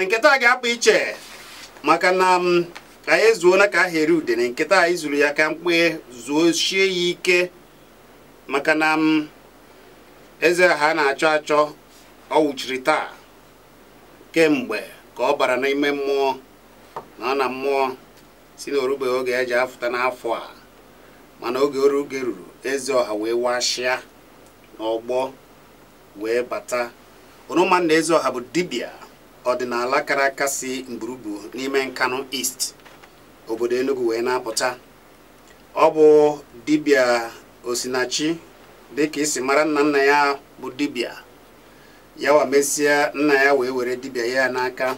and nkịta a ga-akpa iche maka na ka anyị na ka ahịa ude na nketa anyị zuru ya ka mkpe zuo shie ya ike maka na eze ha na-achọ achọ ọ wụchiri taa kemgbe ka ọ bara n'ime mmụọ na ọ na mmụọ si na orube oge e ji afụta n'afọ a mana oge oruge ruru eze ọha wee washịa n'ọgbọ wee bata onuma na eze ọha bụ dibịa ọdịnala kara aka si n'ime Nkanu East obodo Enugu wee na-apụta ọ bụ dibịa Osinachi dịka isi mara nna nna ya bụ dibia ya wa mesịa nna ya wee were dibia ya n'aka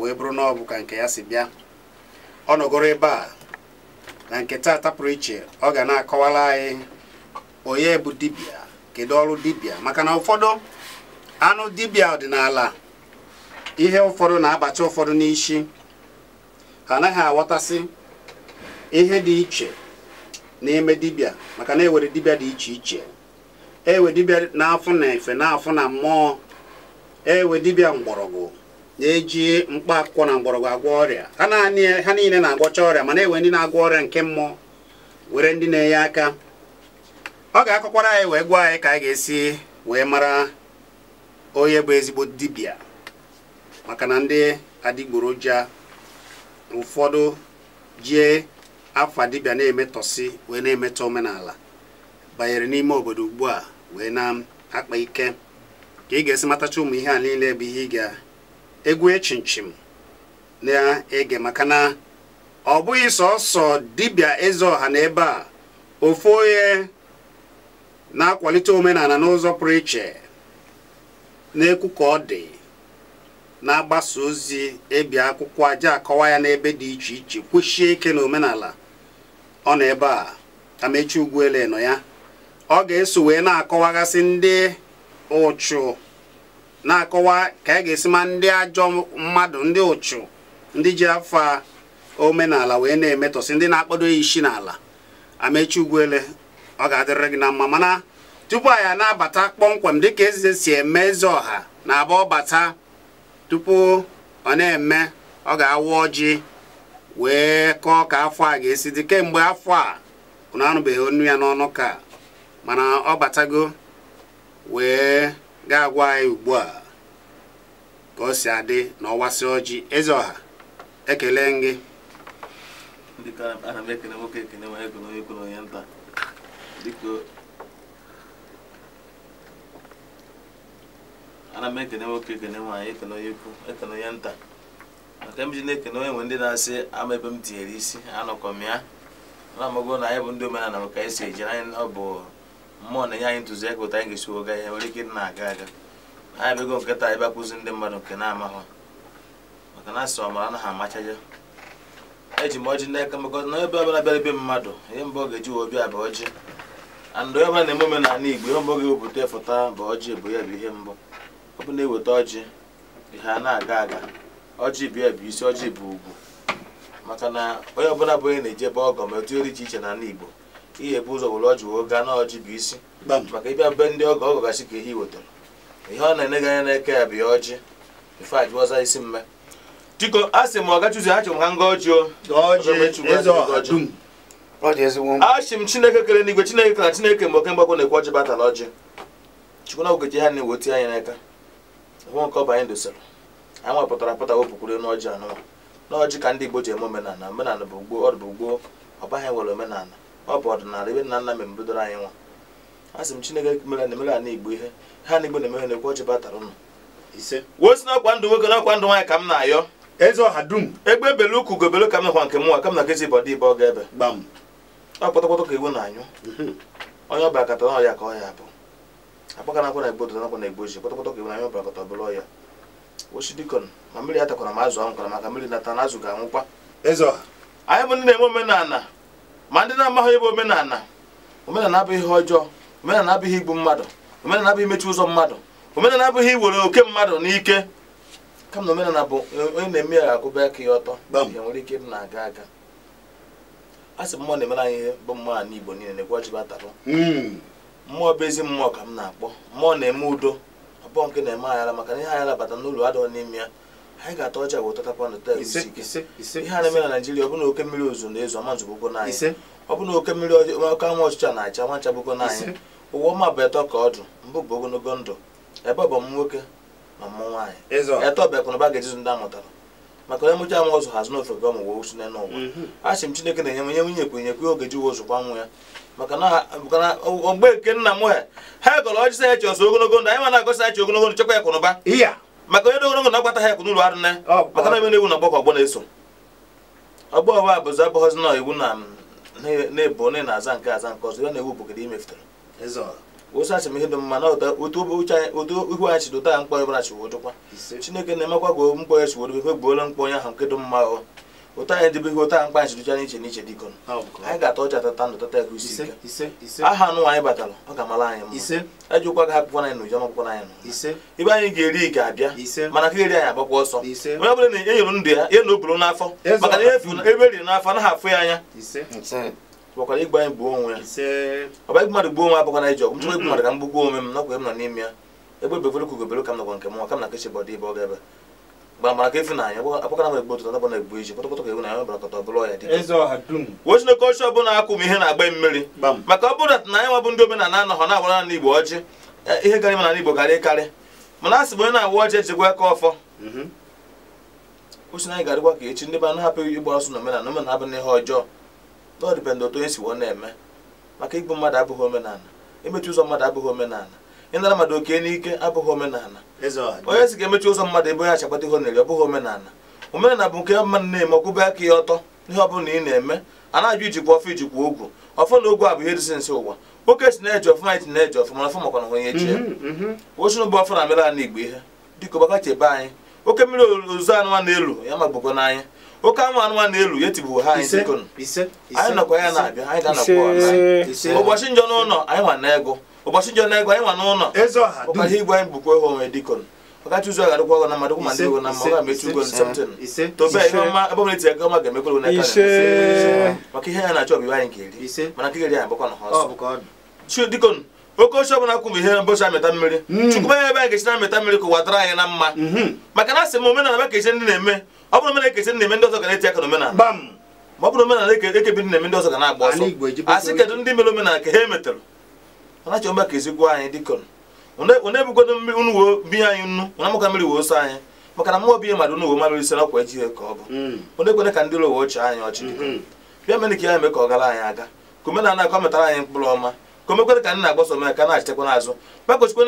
wee bụrụ na bụ ka nke ya si bịa ọ nọgoro ebe a na nke taa pụrụ iche ọ ga na-akọwara anyị onye bụ dibịa kedu ọrụ dibịa maka na ụfọdụ anụ dibịa ọdịnala ihe ụfọdụ na-abacha ụfọdụ n'isi ha anaghị aghọtasị ihe dị iche n'ime dibịa maka na ewere dibịa dị iche iche ewe dibịa n'afọ na efe n'afọ na mmụọ ewe dibịa mgbọrọgwụ na-eji mkpa akwụkwọ na mgbọrọgwụ agwọ ọrịa ha niile na-agwọcha ọrịa mana ewe ndị na-agwọ ọrịa nke mmụọ were ndị na-enye aka ọ ga-akọkwara anyị wee gwa anyị ka anyị ga-esi wee mara onye bụ ezigbo dibịa maka na ndị adịgboroja ụfọdụ jie afọ dibia na-emetọsi wee na-emetọ omenala banyere n'ime obodo ugbu a wee na-akpa ike ka ị ga-esi matacha ụmụ ihe a niile bụ ihe ị ga-egwu chinchim na-ege maka na ọ bụghị sọsọ dibịa eze ọha na ebe a ofu onye na-akwalite omenala n'ụzọ pụrụ iche na-ekwu ka ọ dị na-agbasa ozi ebi akwụkwọ aja akọwa ya n'ebe dị iche iche kwụchie ike na omenala ọ nọ ebe a amechi ugwuele nọ ya ọ ga-eso wee na-akọwagasị ndị ụchụ na-akọwa ka a e ga-esi ma ndị ajọ mmadụ ndị ụchụ ndị ji afa omenala wee na-emetọsị ndị na-akpado ya isi n'ala amechi ugwuele ọ ga-adịrịrị gị na mma mana tupu anyị na-abata kpọmkwem dịka eze si eme eze ọha na-aba bata. tupu ọ na-eme ọ ga-awa ọjị wee kọọ ka afọ a ga-esi dị kemgbe afọ a unu anụbeghị onu ya n'ọnụ ka mana ọ batago wee ga-agwa anyị ugbu a ka o si adị na ọwasị ọjị eze ọha ekele gị ana m ekene nwoke ekene nwaanyị ekene onye ukwu ekene onye nta maka m ji na-ekene onye nwe ndị na-asị ama ebe m tinyere isi anọkọ m ya na amago na anyị bụ ndị omenala maka anyị si eji anyị ọ bụ mmụọ na-enye anyị ntụziaka ụta anyị ga-esi woga ihe nwere ike ịdị na-aga aga anyị bego nkịta ebe akụzi ndị mmadụ nke na-amahụ maka na asị ọmara anaghị amachaja eji m ọjị n'aka mekọta na onye ọbụla bịara ebe mmadụ ihe mbụ ọ ga-eji wee bịa bụ ọjị and onye na-eme omenala Igbo ihe mbụ ga-ewepụta foto bụ ọjị bụ ya bụ ihe mbụ ọ bụ na-eweta ọjị ha na-aga aga ọjị bụ ya bụ isi ọjị bụ ugwu maka na onye ọbụla bụ onye na-eje ebe ma etu eri iche iche na ala Igbo ihe bụ ụzọ wụrụ ọjị wee gaa na ọjị bụ isi maka ịbịa be ndị ọgọ ọgọ gasị ka ihe wetara ihe ọ na-ene gị anya n'eke ya bụ ya ọjị ife ajụọza isi mme diko a sị m ọgachuzi achọrọ m ha nga ọjị achị m chineke kere n'igwe chineke ka na chineke mgbe oke mgbakọ na-ekwe ọjị batara ọjị chukwu na ogeji ha na-eweti anya n'aka hụ nke ọba anyị dosara anyị nwepụtara pụta wepụkwuru n'ọjị anụwa n'ọjị ka ndị Igbo ji eme omenala omenala bụ gboo ọ bụ gboo ọbaghị nwere omenala ọ bụ ọdịnala ebe nna nna m mbidoro anyị nwa a sị m Chineke mere na emere ala Igbo ihe ha na Igbo na-eme ha na-ekwu ọjị batara ụnụ wee n'ọkwa ndụ nwoke n'ọkwa ndụ nwaanyị ka m na-ayọ eze ọha dum egbe ebele ukwu gobelo ka m nakwa nke mụnwa ka m na nkezi bọdị ibe ọ ga-ebe ọ kpọtọkpọtọ ka iwu na-anyụ mhm. onye ọba akata ọya ka ọ ya bụ akpọkanakwa na igbo dodanakwa na igbo ji kpọtakpọta ka ịbụnanya ọbara kọta ọbụla ọya ochi dikon ma mmiri ya atakwara ma azụ anwụkwara maka mmiri nata na azụ ga-anwụkwa anyị bụ ndị na-eme omenala ma ndị na-amaghị ịbụ omenala omenala abụghị ihe ọjọọ omenala abụghị igbu mmadụ omenala abụghị imechi ụzọ mmadụ omenala abụghị iwere oke mmadụ n'ike kama eh, na omenala bụ onye na-eme ya ga-akwụba aka ya ọtọ ya nwere ike ịdị na-aga aga a sị mmụọ na-emere anyị bụ mmụọ ala igbo niile na-egwu ọjị batarụ mmụọ bụ ezi mmụọ ka m na-akpọ mmụọ na-eme udo abụọ nke na-eme anyala maka na ihe anyị labata n'ụlọ adịghọ n'ime ya anyị ga-ata ọcha wee tọtapa na tel ihe a na-eme na naijiria ọbụna bụ na oke mmiri ozu na-ezo ama nzụgbụgo n'anyị ọ bụ oke mmiri oke anwụ ọchịcha na-acha nwa nchagbụgo n'anyị ụwa ọma bụ eto ka ọdụ mbụ bụ ogologo ndụ ebe ọ bụ m nwoke ma m nwaanyị eto bịakwa na ga-ejizu ndị amụtara maka onye mụcha amụ ọzụ hazi n'ofe gị ọmụ wee n'ụwa a sị m chineke na-enye m nye nwunye kwenyekwe oge ji wozụkwa nwa ya maka na nke nna m ha ha gọrọ ọchịsa chi ọsọ ogologo ndụ anyị ma na-agọsa ya ogologo ndụ chekwa ya kwụrụ ba maka onye ogologo na agbata ha ekwụ n'ụlọ arụ nne maka na na-ewu na ọgbakọ ọgbọ na-eso ọgbọ abụghọzi na iwu na na-ebu na ebo na na aza nke aza nke ọzọ ya na-ewu bụ gịdị imefutere asị m ihe dị mma na otu ihu anyị chido mkpọ ọbụla chiwodo kwa chineke emekwa mkpọ ya chiwodo gbuola mkpọ ahụ nke dị ụta anyị edebeghi ụta mkpa nchicha n'iche n'iche dịko anyị ga-ata ọcha tata ndụ tata ego isi ike aha anụ anyị batara ọ ga amala anyị mma ejikwa e ga akwụkwọ anyị na ụjọ akwụkwọ anyị ibe anyị ga-eri ga-abịa mana ka eri anyị agbakwa ọsọ onye ọbụla na enyere ndụ ya na oburu n'afọ maka na ihe ebe eriri n'afọ anaghị afụ ya anya bakwara igbe anyị gbuo onwe ya gbuo onwe m igbu mmadụ m gbugbuo onwe m ya egbe bevere kugobere ka m nke mụnwa ka m na mgbe amara ka ịfụnanya akpọkọrọ m ọbụla akwụ m ihe na-agba mmiri maka ọ bụrụ na anyị nwabụ ndị omenala anọghọ na-agbara na igbo ọjị eh, ihe gara ime na igbo karị karị mana a sị bụ onye na-awa ọjị ejigwa aka ọfọ mhm. ochi anyị ga ka echi ndị be anụ hapụ ịgba ọsọ na omenala omenala abụ n'ihe ọjọọ na ọ otu onye si wọ na-eme maka igbu mmadụ abụghị omenala imechi ụzọ mmadụ abụghị omenala ịnara mmadụ oke n'ike abụghị omenala onye si ga-emechi ụzọ mmadụ ebe onye achagbata ihe na-eri ọ bụghị omenala omenala bụ nke mmadụ na-eme ọkwụbe aka ya ọtọ ihe ọ bụla ị na-eme a na-ajụ ijikwa ọfụ ijikwa ogwu ọfụ na ogwu a bụ ihe dịsị nsị ụwa nwoke si na-eji ọfụma anyị na-eji ọfụma ọfụ makwa na onye echi ya osin bụ ọfụ na mere ala igbo ihe dịka ọgbaka chebe anyị oke mmiri ozu anụmanụ na-elu ya magbugo n'anya oke anwụ anụmanụ na-elu ya tibụ ha anyị dịkọ anyị nọkwa ya na-abịa anyị ga-anọkwa ụbọchị njọ n'ụlọ anyị nwa na ego ụbọchị ji na-egwu anyị nwa n'ụlọ ụka igwe anyị bụkwa ihe onwe dịkọn ọkacha ụzọ ga-adịkwa ọgọ na mmadụ kwụ ma ndị ego na mma ga-emechi ugo septin tobe ihe ọma ebe ọbụla etinye ego ọma ga-emekwere ụna aka maka ihe ya na-achọ bụ anyị eri mana nke ga-eri anyị na ọsọ oke ọbụla kwụ ihe amịta ya mm. na-amịta mmiri ka na mma mm-hmm. maka na asị m omenala ekeche ndị na-eme ọ na-eme ndị ọzọ ga na-eti aka ọ bụrụ omenala ekebi ndị na-eme ndị ọzọ ga na-agba ọsọ asị kedụ ndị mere omenala ka ha ọnachioma ka ezigbo anyị dịkọn one ebugodo unu wo bi anyị nnu na mụka mmiri wo so anyị maka na mmụọ bi mmadụ unu mmadụ ise si nakwa ejighị ka ọ bụ hmm. onye kwene ka ndị ụlọ uwe ochie anyị ọchị hmm. bịa mere ka ya eme ka ọ gara anyị aga ka ka ọ metara anyị mkpụrụ ọma ka omekwere ka ndị na-agbaso omenala ka na n'azụ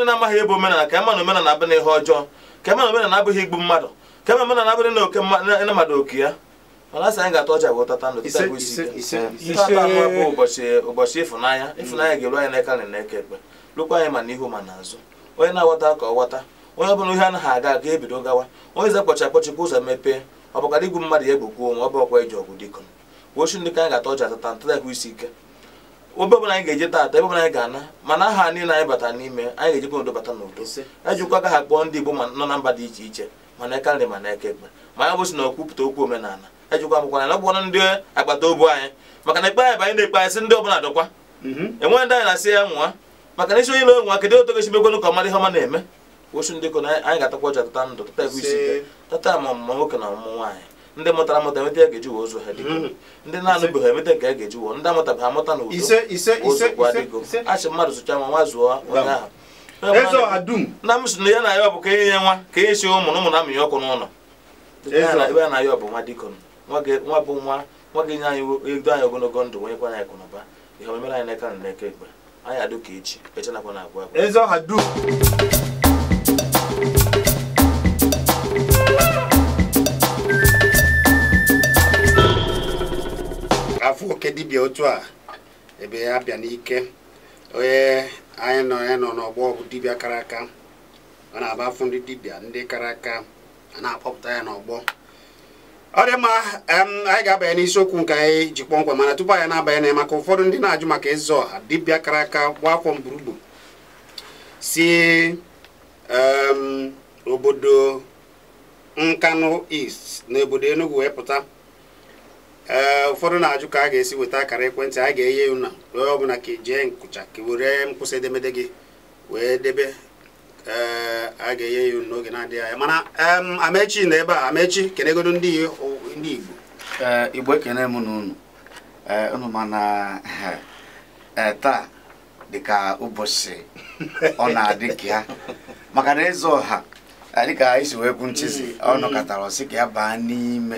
na-amaghị ebe omenala ka ema na omenala ihe ọjọọ ka na omenala abụghị igbu mmadụ ka ema omenala abụghị na oke mmadụ oke ya mana asị anyị ga-atọ ọcha bụ ndụ kịta bụ isi tata anụ bụ ụbọchị ụbọchị ịfụnanya ịfụnanya ga-eru anyị n'aka na n'eke ekpe lụkwa anyị ma n'ihu ma n'azụ onye na-aghọta ka ọ ghọta onye ọbụla ihe anaghị aga aga ebido gawa onye ze kpọcha akpọchipụ ụzọ mepee ọ bụkara igwu mmadụ ya egbukwu onwe ọ bụrụkwa eji ọgwụ dịkọ wochi ndị ka anyị ga-atọ ọcha tata ntata bụ isi ike obe ọbụla anyị ga-eje tata ebe ọbụla anyị ga-ana mana aha niile anyị bata n'ime anyị ga-ejikwa n'udo bata n'udo ejikwa ka ha kpọọ ndị Igbo nọ na mba dị iche iche mana eka nri ma na eke ekpe ma ya bụsi na okwupụta okwu omenala ejikwa agbụkwara na agbụkwara ndị agbata obi anyị maka na ikpe anyị bụ na-ekpe ndị ọbụla dọkwa mhm. enweghị ndị anyị na-asị ya nwa maka na isi onye na-enwe kedu otu gesi mekwenu ka ọmadị ihe ọma na-eme osu ndị kona anyị ga-atakwa ọcha tata ndụ tata egwu isi tata ma ọmụma nwoke na ọmụmụ nwaanyị ndị mụtara amụta emeta ya ga-eji ụzọ ha mhm. ndị na-anụbeghị emeta ka ya ga-eji ndị amụta na ụzọ m ya na ọ bụ ka enye nwa ka enye si ụmụ na ụmụ na-amụnye ọkụ n'ụlọ ebe a na nwa bụ nwa nwa ga-enye anyị ego anyị ogologo ndụ nwenyekwa anyị akụnụba ihe omemere anyị n'aka na n'aka ekpe anyị adụ ka echi eche nakwa na agwa agwa eze ọha dum afọ oke dibịa otu a ebe ya bịa n'ike onye anyị nọ ya nọ n'ọgbọ bụ dibịa kara aka ọ na-aba afọ ndị dibịa ndị kara aka a na-akpọpụta ya n'ọgbọ ọ dị mma anyị ga-abanye n'isiokwu nke anyị ji kpọmkwem mana tupu anyị na-abanye na maka ụfọdụ ndị na-ajụ maka ezo ọha dibịa kara aka gba akwọ mgburugbu si obodo Nkanu East na obodo Enugu wee pụta e, ụfọdụ na-ajụ ka a ga-esi weta akara ekwentị anyị ga-enye unu wee ọbụla ka ijee nkụcha ka were mkpụsị edemede gị wee debe Eh, a ga-enye ya n'oge na-adịghị anya mana amechi na ebe a amechi kenegodo ndị igbo eh, igbo ekene m na unu eh, unu mana taa dịka ụbọchị ọ na-adị ka ya maka na eze ọha dịka isi wee kwu nchizi mm, ọ mm. nọkọtara ọsị ka ya baa n'ime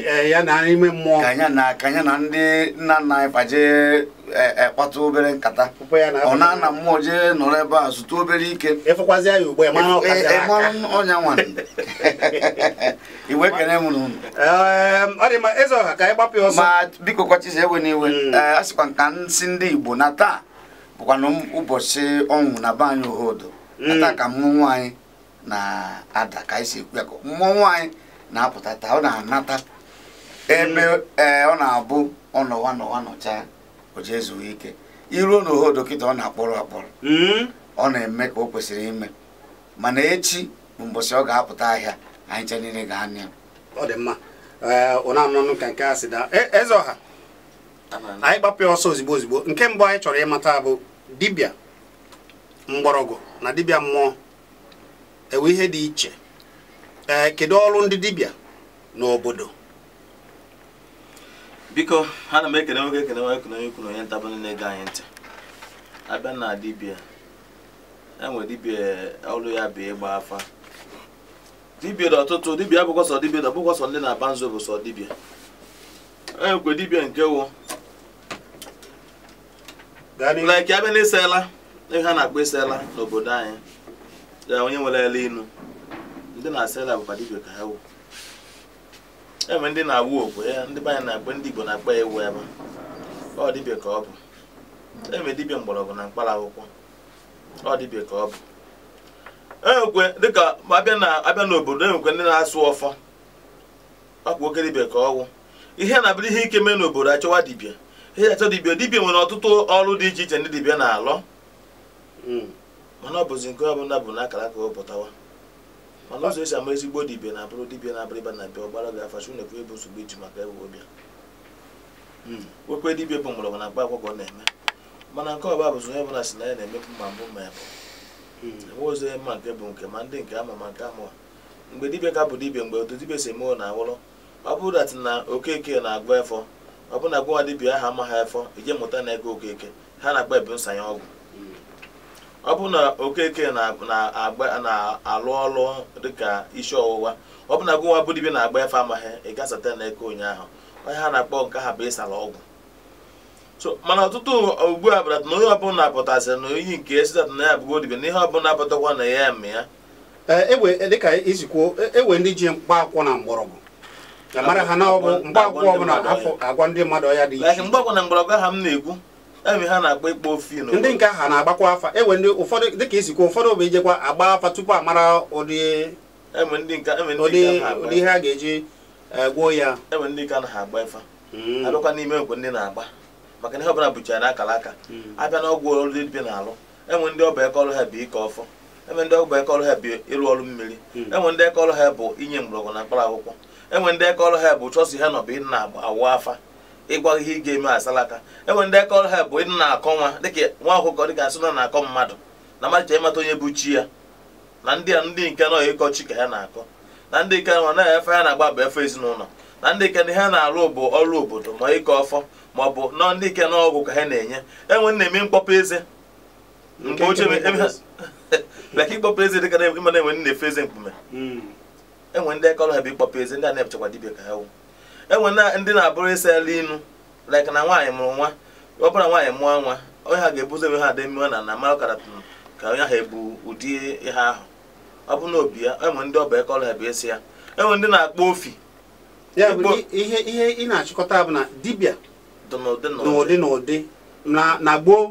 ka ya na ndị nna nna anyị kpaje Eh, eh, kpata obere nkata ọ na ana mmụọ jee nọrọ ebe a zụta obere ike ọnya nwa iwe kene m n'ụlọ ma biko kwachizi ewe n'iwe hmm. eh, a sịkwa nka nsị ndị Igbo na taa bụkwanụ ụbọchị ọnwụ na be anyị ohodo ata hmm. ka mmụọ nwanyị na-ada ka anyị si ekwu ya mmụọ nwanyị na-apụta taa ọ na-anata ebe hmm. ọ na-abụ ọ nọwa nọwa nọcha o jee zuo ike iruo na dọkịta ọ na-akpọrọ akpọrọ hmm? ọ na-eme ka o kwesịrị ime mana echi bụ mbọsị ọ ga-apụta ahịa anyị cha niile ga-anya ọ dị mma ụna ka nke a sị da e, eze ọha anyị gbapịa ọsọ ozigbo ozigbo nke mbụ anyị chọrọ ịmata bụ dibịa mgbọrọgwụ na dibịa mmụọ ewe ihe dị iche ee kedu ọrụ ndị dibịa n'obodo biko ana m ekele nwoke ekele nwa ekele onye ikwu na onye nta bụ na-ege anyị ntị abịa na dibia e nwere dibia e, ọrụ ya bụ ịgba afa dibia dị ọtụtụ dibia abụkwa sọ dibia dị ọbụkwa sọ ndị na-aba nzu bụ sọ dibia e nwekwe dibia nke wụ like abịa na ịsala ihe ha na-akpọ ịsala n'obodo anyị onye nwere ele inu ndị na-asa bụkwa dibia ka ha wụ enwe ndị na-awụ okwe ya ndị be na-akpọ ndị Igbo na akpa ya ewu ebe ọ dibịa ka ọ bụ enwe dibịa mgbọrọgwụ na mkpara akwụkwọ ọ dibịa ka ọ bụ enwekwe dịka abịa na abịa n'obodo enwekwe ndị na-asụ ọfọ ọkwa oke dibịa ka ọwụ ihe na-abịa ihe ike mee n'obodo achọwa dibịa ihe achọ dibịa dibịa nwere ọtụtụ ọrụ dị iche iche ndị dibịa na alọ hmm. mana ọ bụzi nke ọbụla bụ n'akara ka ọ pụtawa mana ụzọ esi ama ezigbo dibịa na-abụrụ dibịa na-abụrụ ịba na bịa ọgbara gị afa chunekwu ebu nsogbu iji maka ewu ọbịa okwe hmm. dibịa bụ mgbọrọgwụ na mkpa akwụkwọ na-eme mana nke ọba bụzi onye ọbụla si na ya na-emepụ ma mbụ ma ya bụ hmm. enwe ụzọ ma nke bụ nke ma ndị nke ama ma nke amụwa mgbe dibịa ka bụ dibịa mgbe otu dibịa si eme na awụrụ ọ bụrụ datị na okeke na-agụ efọ ọ bụ na gwa dibịa aha amaghị efọ ije mụta na ego okeke ha na-agba ebu nsanye ọgwụ ọ bụ na okeke na-alụ ọlụ dịka isi ọwụwa ọ bụ na gụnwa bụ dibia na-agba efe amaghị ị gasata n'eke ụnyaahụ onye ha na-akpọ nke ha bụ ịsala ọgwụ mana ọtụtụ ugbu a bụrata na onye ọbụla apụtasịrị na oyi nke esitata na ya bụgo dibia na ihe ọbụla apụtakwa na ya eme ya eh, e e, dịka izikwuo ewe e ndị ji akwụ na mgbọrọgwụ mara ha na ọ bụ mkpaakwụkwọ ọbụla afọ agwa ndị mmadụ ọya dị iche mgbe akwụkwọ na mgbọrọgwụ ha m na-ekwu ha na-agba ịkpọ ofi ndị nke ha na-agbakwa afa ewe ndị ụfọdụ dịka isikwa ụfọdụ bụ ijekwa agba afa tupu a mara ụdị e e ụdị ihe a ga-eji e, gwuo ya enwe ndị nke na agba ịfa hmm. abịakwa n'ime nkwe ndị na-agba maka ihe ọbụla bụchara na akara aka hmm. abịa na ọgwụ ọrụ dị na-alụ enwe ndị ọba bụ eke ha bụ ịrụ ọrụ mmiri hmm. enwe ndị eke ha bụ inye ndị eke ha bụ chọsi ha na-awụ afa ịgwa ihe ị ga-eme asalaka enwere ndị ọrụ ha bụ ịdị na-akọ nwa dịka nwa akwụkwọ dịka asị na akọ mmadụ na mmadụ ịmata onye bụ chi ya na ndị a ndị nke nọ ịkọ chi ka ha na-akọ na ndị nke nọ na efe ha na-agba bụ efe ezinụlọ na ndị nke ha na-arụ bụ ọrụ obodo ma ịkọ ọfọ ma ọ bụ na ndị nke n'ọgwụ ka ha na-enye enwe na-eme mkpọpụ eze mgbe ochie leka ịkpọpụ eze dịka ịma na enwe na-efe eze mkpume hmm. enwe ndị akọrọ ha bụ ịkpọpụ eze ndị a na-epụchakwa dibịa ka ha wụ enwe ndị na-abụrụ ịsa elu inu like na nwaanyị mụrụ nwa ọbụla nwaanyị mụọ nwa onye ha ga-ebuzo ebe ha dị mmiwa na na mara ọkara ka onye ha ebu ụdị ihe ahụ ọ bụ na obi ya enwe ndị ọba ekọrọ bụ esi ya enwe ndị na-akpọ ofi ya ihe ihe ị na-achịkọta bụ na dibịa n'ụdị n'ụdị na gboo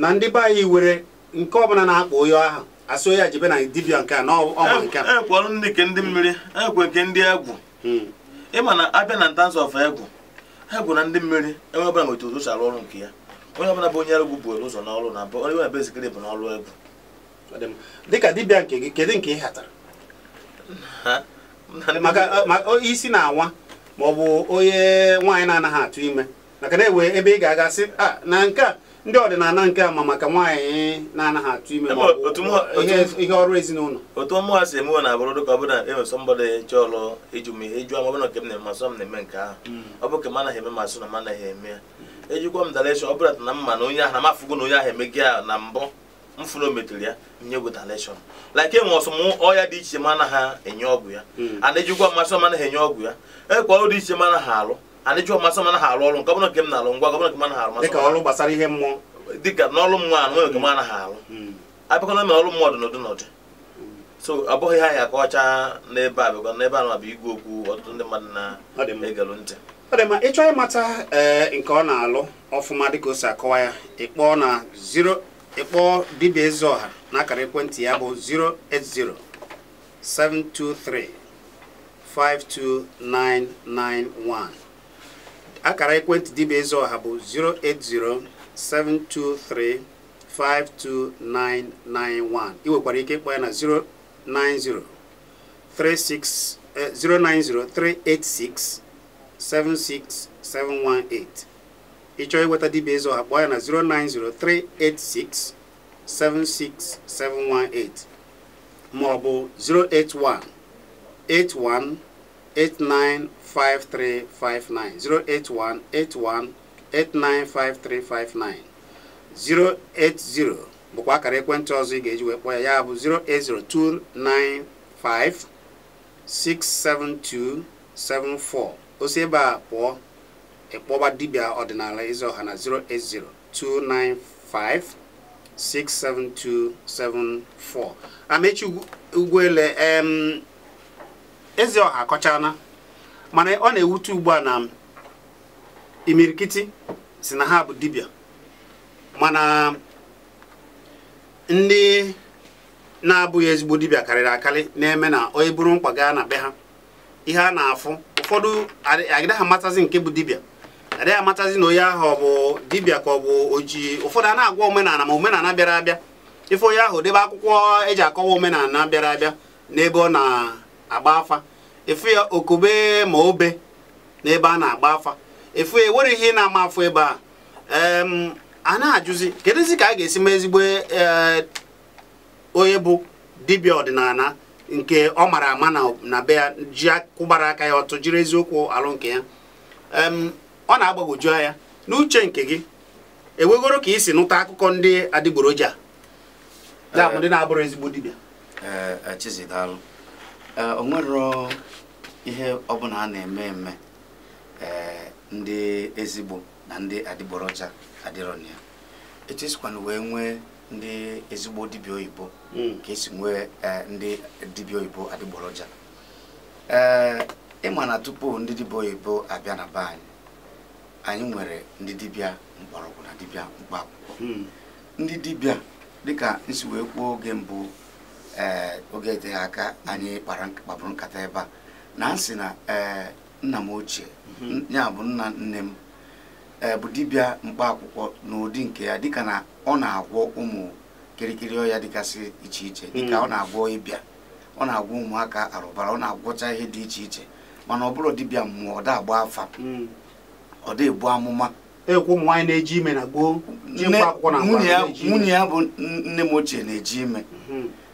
na ndị be anyị were nke ọbụla na akpọ onye ahụ asị onye jebe na dibịa nke a na ọma nke a enwekwa nke ndị mmiri enwekwa nke ndị egwu ịma na abịa na ntanso of egwu ha egwu na ndị mmiri enwe ọbụla nwetara ụzọ si arụ ọrụ nke ya onye ọbụla bụ onye egwu buere ụzọ n'ọrụ na onye ọbụla bụ ezikere bụ n'ọrụ egwu dịka dibịa nke gị kedu nke ị hatara maka isi na-awa ma ọ bụ onye nwaanyị na-anaghị atụ ime maka na enwe ebe ị ga-aga sị ah, na nke a ndị ọdịnala nke ama maka nwaanyị na-anaghị atụ ime ihe ọrụ ezinụlọ otu ọmụ si emewe na-abụrụ dịka ọ bụla e mgbada ọlụ ịjụ m ihe ịjụ ama nke m na-eme masọ m na-eme nke ahụ hmm. ọ bụ ka m anaghị eme na m anaghị eme ya ejikwa m daleshọn ọ bụla na mma na onye ahụ na na onye ahụ emegị ya na mbụ mfụrụ ya nyegwu daleshọn enwe e ọsọm ọya dị iche ma anaghị enye ọgwụ ya hmm. ana ejikwa mmasị anaghị enye ọgwụ ya e ọrụ dị iche ma anaghị alụ ani ji ọmasị m anaghị arụ ọrụ nke ọbụla nke m na-arụ ngwa gọbụla nke m anaghị arụ masị dịka ọrụ gbasara ihe mmụọ dịka hmm. hmm. n'ọrụ mmụọ anụ nwere nke m anaghị arụ abịakwana m ọrụ mmụọ ọdịnọdụ n'ọdị so abụghị ha ya ka ọcha n'ebe a bịakwa n'ebe a anụ abịa igwu okwu ọtụtụ ndị mmadụ na-egelụ ntị ọ dị mma ịchọ ịmata eh, nke ọ na-alụ ọfụma dịka o si akọwa ya ịkpọ na zero ịkpọ dibịa eze ọha n'akara ekwentị ya bụ 080 akara ekwentị dibịa ọha bụ 08072352991 ị nwekwara ike ịkpọ ya na 09038676718 ịchọọ ịnweta dibịa Ezeọha kpọọ ya na 09038676718 ma ọ bụ 0818189 8359 081 81 895359 080 bụkwa akara ekwentị ọzọ ị ga-eji wee kpọọ ya ya bụ 08029567274 osi ebe a pụọ ịkpọba dibia ọdịnala Ezeoha na 08029567274 amechi ugwuele em Ezeoha akọchana mana ọ na-ewute ugbu a na imirikiti si na ha bụ dibia mana ndị na-abụghị ezigbo dibia karịrị akarị na-eme na onye bụrụ mkpa gaa na be ha ihe a na-afụ ụfọdụ agaghị amatazi nke bụ dibia adịghị amatazi na onye ahụ ọ bụ dibia ka ọ bụ oji ụfọdụ a na-agwa omenala ma omenala bịara abịa ife onye ahụ debe akwụkwọ eji akọwa omenala bịara abịa n'ebe ọ na-agba afa efu ya okube ma obe n'ebe a na-agba afa efu ya ewere ihe ị na-ama afọ ebe a a na-ajụzi kedụzi ka a ga-esi ma ezigbo e, onye bụ dibịa ọdịnala nke ọ mara ama na be ya ji kwụbara aka ya ọtụ jiri eziokwu alụ nke ya ọ na agbagoju anya n'uche nke gị ewegoro ka i si nụta akụkọ ndị adịgboroja ndị na-abụrụ ezigbo dibịa e, e, o ihe ọbụla a na-eme eme ndị ezigbo na ndị adịgboroja adịrọna etu esikwana wee nwee ndị ezigbo dibịa oyibo hmm. ka esi nwee ndị dibịa oyibo adịgboroja ee ịma na tupu ndị dibịa oyibo abịa na be anyị nwere ndị dibịa mgbọrọgwụ na dibịa mkpa akwụkwọ hmm. ndị dibịa dịka nsi wee kwuo oge mbụ ee eh, oge dị aka anyị kpabụrụ nkata ebe a na nsị na ee nna m ochie mhm. ya bụ nna nne m e bụ dibịa mkpaakwụkwọ n'ụdị nke ya dịka na ọ na-agwọ ụmụ kirikiri ọya dịgasị iche iche mhm. dịka ọ na-agwọ ịbịa ọ na-agwọ ụmụaka arụbara ọ na-agwọcha ihe dị iche iche mana ọ bụrụ dibịa mmụọ ọ da afa mhm. ọ dị ebu amụma nwunye ya bụ nne m ochie na-eji ime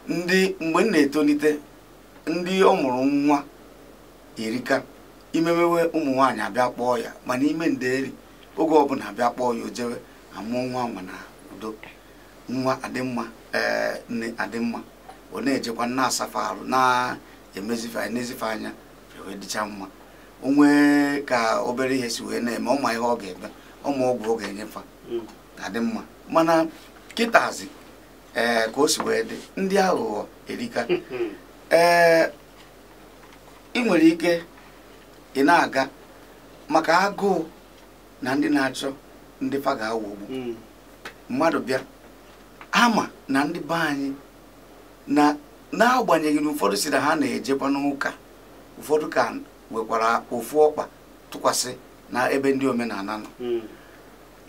ndị mgbe m na-etolite ndị ọ mụrụ nwa erika imemewe ụmụ nwaanyị abịa kpọọ ya mana ime nderi oge ọbụla abịa kpọọ ya ojewe amụọ nwa nwa na udo nwa adịmma ee eh, nne adịmma ọ na-ejekwa na-asafa arụ na-emezife na-ezife anya wee dịcha mma onwe ka obere ihe si wee na-eme ọma ihe ọ ga-eme ọma ọgwụ ọ ga-enyefa hmm. adị mana kịtazi ee eh, ka o si wee dị ndị aghụghọ erika hmm, hmm. ee eh, ị nwere ike ị na-aga maka agụụ na ndị na-achọ ndị paga ga-awụgbu hmm. mmadụ bịa ama na ndị be anyị na n'agbanyeghị na ụfọdụ si na ha na-ejekwa n'ụka ụfọdụ ka nwekwara ofu ọkpa tụkwasị na ebe ndị omenala nọ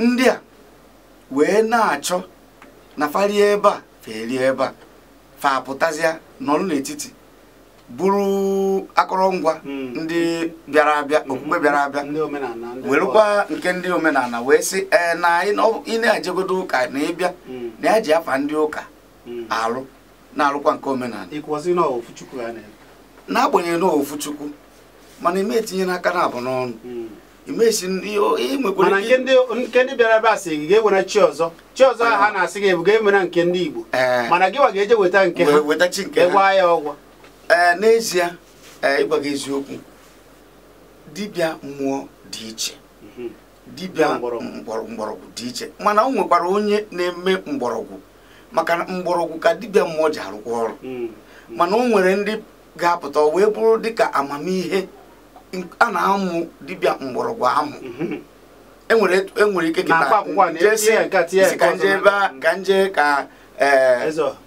ndị a wee na-achọ na falie ebe a felie ebe a fa apụtazịa n'ọrụ n'etiti bụrụ akụrụngwa hmm. ndị bịara abịa hmm. okpukpe bịara abịa werekwa nke ndị omenala wee sị ee na ị na-ejegodo ụka na ịbịa hmm. na ya e ji afa ndị ụka alụ na-alụkwa nke omenala n'agbanyeghị na ofu chukwu mana ime etinye n'aka na abụ n'ọnụ Eh, mana nke ndị bịara ebe a sị gị ga-ewere chi ọzọ chi ọzọ ha na-asị gị ebuga ewere nke ndị Igbo eh. mana gị wa ga-eje weta nke ha gwa ya ọgwọ eh, n'ezie ịgwa gị eziokwu dibịa mmụọ dị iche mhm. dibịa mgbọrọgwụ dị iche mana o nwekwara onye na-eme mgbọrọgwụ maka mgbọrọgwụ ka dibịa mmụọ ji arụkwa ọrụ mm. mana o nwere ndị ga-apụta wee bụrụ dịka amamihe a na-amụ dibịa mgbọrọgwụ amụ mhm. enwere e ike ka nje ka e,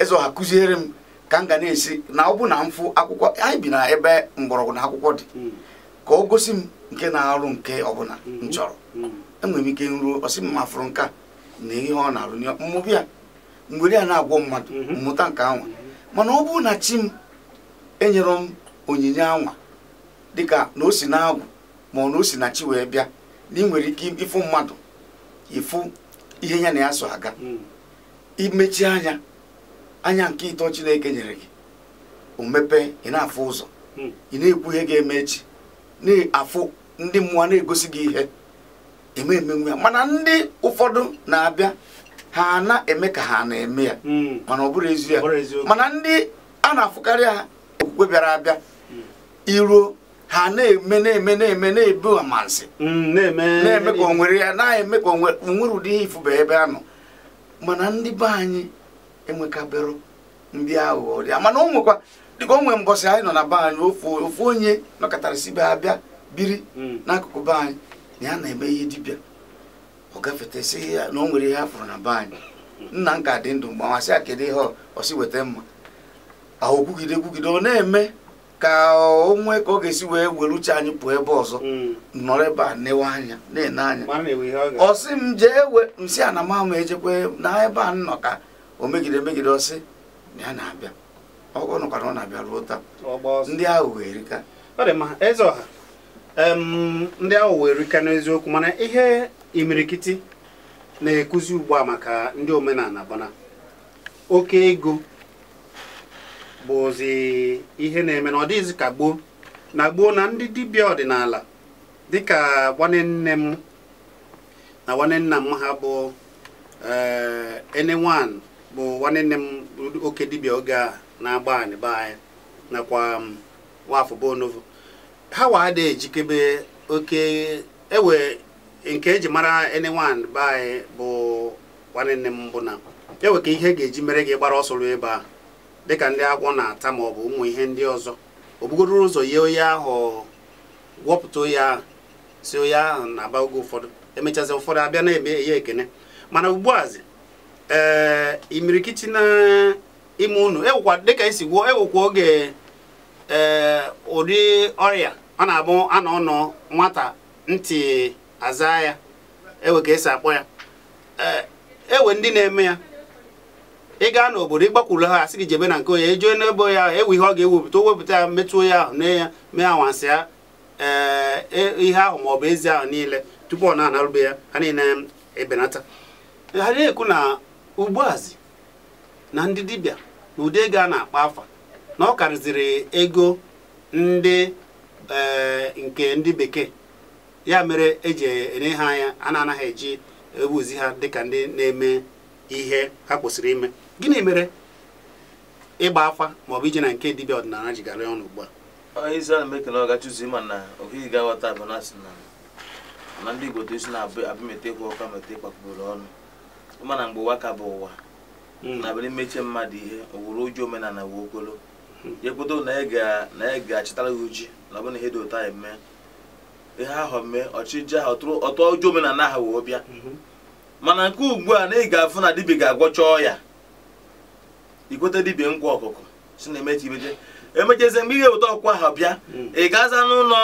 ezo ha kụziere m ka m ga na-esi na ọ bụ na mfụ akwụkwọ anyị bi na ebe mgbọrọgwụ na akwụkwọ dị mhm. ka ọ gosi m nke na-arụ nke ọbụla m mhm. chọrọ enwere m ike nruo ọsị mma mafụrụ nka a na ihe ọ na-arụ mmụbi a mgbere a na-agwọ mmadụ mmụta nke anwa mana ọ bụ na chi m enyere m onyinye anwa dịka na o si na ma ọ na o si na chi wee bịa na ị nwere ike ịfụ mmadụ ịfụ ihe ya na ya so aga hmm. imechi anya anya nke ịtọ chineke nyere gị o mepee ị na-afụ ụzọ hmm. ị na-ekwu ihe ga-eme echi na-afụ ndị mmụọ na-egosi gị ihe e eme emenwe ya mana ndị ụfọdụ na-abịa ha na-eme ka ha na-eme ya hmm. mana ọ bụrụ ezi ya mana ndị a na-afụkarị ha okwukwe bịara abịa iruo ha na-eme na-eme na-eme na-ebu amansi mm, na-eme ka onwere ya na-eme ka onwere ụdị ihe ifu bụ ebe a nọ mana ndị be anyị enwekabero ndị aghụghọ dị mana o nwekwa dịka onwe nwere mbọsị anyị nọ na be anyị ofu onye nọkọtarịsị be abịa biri mm. n'akụkụ be anyị na ya na-eme ihe dibịa ọ gafetesị ya na o nwere ihe a pụrụ na be anyị nna m ka dị ndụ mgbe amasị ya kedu ihe ọsi weta mma ahụ kwugide kwugide ọ na-eme ka o nwee ka ọ ga-esi wee were uche anyị pụọ ebe ọzọ hmm. nọrọ ebe a newe anya na-ene anya ọ sị m jee we nsị a na mama ejekwe na ebe a nnọ ka o megide megide ọsị ya na-abịa ọ nọkwara ọ na-abịa ruo taa ndị ahụ wee rika eze ọha ndị ahụ wee rika n'eziokwu mana ihe imirikiti na-ekuzi ugbu a maka ndị omenala bana oke ego bụzi ihe na-eme na ọ dịghịzi ka gboo na gboo na ndị dibịa ọdịnala dịka nwanne nne m na nwanne nna m ha bụ enewan eh, bụ nwanne nne m oke dibịa oge a na-agba anyị anyị nakwa nwafọ bonovo ha wa ada ejikebe oke ewe nke eji mara enewan 1 be anyị bụ nwanne nne m bụ na ewe ka ihe ga-eji mere gị gbara ọsọ ruo ebe a dịka ndị agwọ na-ata ma ọ bụ ụmụ ihe ndị ọzọ o bugoro ụzọ ya onye ahụ gwọpụta onye ahụ si onye ahụ na-aba oge ụfọdụ emechazi ụfọdụ abịa na-eme ya ekene mana ugbuazi ee eh, imirikiti na eh, ime unu ewekwa dịka esi gwuo ewekwa oge ee eh, ụdị ọrịa ọ na-abụ anọ ọnọ nwata ntị aza ya ewe ka esi akpọ ya e ee ewe ndị na-eme ya ị gaa n'obodo ịgbakwuru ha asị gị jebe na nke onye ejue n'ebe onye ahụ ewu ihe ọ ga-ewepụta o wepụta ya ahụ na ya mee anwansị ya e, ihe ahụ ma ọ bụ ezi ahụ niile tupu ọ na-anarube ya ha niile ebenata ha na-ekwu na ugbuazị na ndị dibịa na ụdị ego a na-akpa afa na ọ karịziri ego ndị nke ndị bekee ya mere eji enye ha anya a na-anaghị eji ewuzi ha dịka ndị na-eme ihe ha kwesịrị ime gịnị mere ịgba afa maọbụ ije na nke dibịa ọdịnala ji gara ọnụ ugbu a onye isi a na-emeke na ọ gachuzi ma na ohighị ga-aghọta bụ na na ndị igbo isi na-abụ metekwa ụka mete kpakpụrụ ọnụ ịma na mgbe ụwa ka bụ ụwa hmm. na bịrị mechie mmadụ ihe owuru uju omenala wee okpolo hmm. ya kwedo na ya ga-achịtara gị uji na ọ bụ na ihe dị ụtọ anyị mee ihe ahụ mee ọchịje ahụ ọtụọ uju omenala ahụ wee bịa hmm. mana nke ugbu a na ị ga-afụ na dibịa ga-agwọcha ọya igote dibia nkwa ọkụkọ si na emechi imeche emechezie mgbe ị ga ọkwa ha bịa ị gaza n'ụlọ